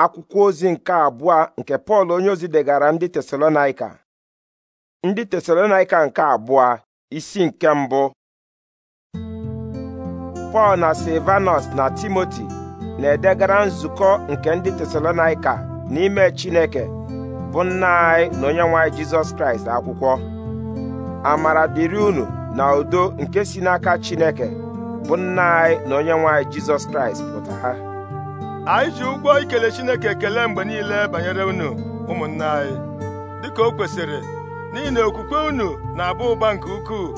akwụkwọ ozi nke abụọ nke pọl onye ozi degara ndị tesalonaika ndị tesalonaika nke abụọ isi nke mbụ pọl na silvanus na timoti na-edegara nzukọ nke ndị tesalonaika n'ime chineke bụ nna anyị na onye nwanyị jizọs kraịst akwụkwọ amara dịrị unu na udo nke si n'aka chineke bụ nna anyị na onye nwanyị jizọs kraịst pụta anyị ji ụgwọ ikele Chineke ekele mgbe niile banyere unu ụmụnna anyị dịka o kwesịrị n'ihi na okwukwe unu na abụ ụba nke ukwuu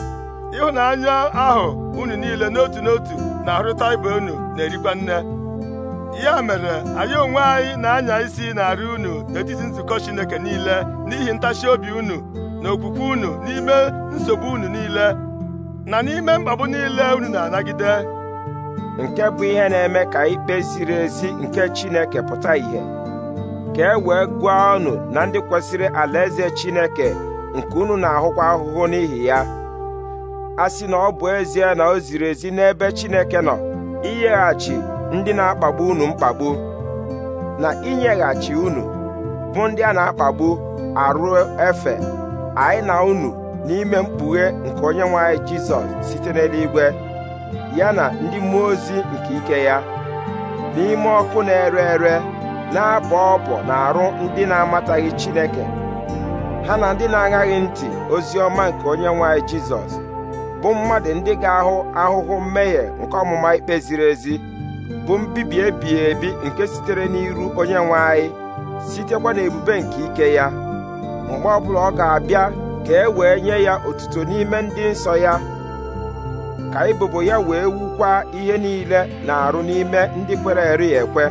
ịhụnanya ahụ unu niile n'otu n'otu na-arụta ibe unu na-erikwa nne ya mere anyị onwe anyị na-anya isi na-arị unu n'etiti nzukọ Chineke niile n'ihi ntachi obi unu na okwukwe unu n'ime nsogbu unu niile na n'ime mkpagbu niile unu na-anagide nke bụ ihe na-eme ka ikpe ziri ezi nke Chineke pụta ìhè ka e wee gụọ ọnụ na ndị kwesịrị alaeze Chineke nke unu na-ahụkwa ahụhụ n'ihi ya a sị na ọ bụ ezie na o ziri ezi n'ebe Chineke nọ inyeghachi ndị na-akpagbu unu mkpagbu na inyeghachi unu bụ ndị a na-akpagbu arụ efe anyị na unu n'ime mkpughe nke onye nwe Jizọs site n'eluigwe ya na ndị mmụọ ozi nke ike ya n'ime ọkụ na-ere ere na-abọ ọbọ na arụ ndị na-amataghị Chineke ha na ndị na aghaghị ntị ozi ọma nke onye nwanyị Jizọs bụ mmadụ ndị ga-ahụ ahụhụ mmehie nke ọmụma ikpe ziri ezi bụ mbibi ebighị ebi nke sitere n'iru onye nwe anyị sitekwa n'ebube nke ike ya mgbe ọbụla ọ ga-abịa ka e wee nye ya otuto n'ime ndị nsọ ya ka ebubo ya wee wukwa ihe niile na-arụ n'ime ndị kwere eri ekwe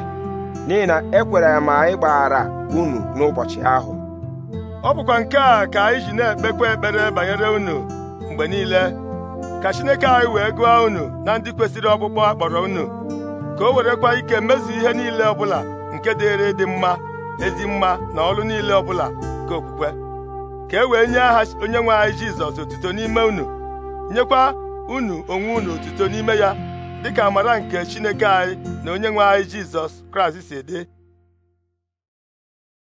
n'ihi na ekwere ma anyị gbaghara unu n'ụbọchị ahụ ọ bụkwa nke a ka anyị ji na-ekpekwa ekpere banyere unu mgbe niile ka Chineke anyị wee gụọ unu na ndị kwesịrị ọkpụkpọ akpọrọ unu ka o werekwa ike mezu ihe niile ọbụla nke dịrị dị mma ezi mma na ọrụ niile ọbụla nke okwukwe ka e wee nye aha onye nwe anyị Jizọs otuto n'ime unu nyekwa unu onwe unu otuto n'ime ya dịka amara nke Chineke anyị na onye nwe anyị Jizọs Kraịst si dị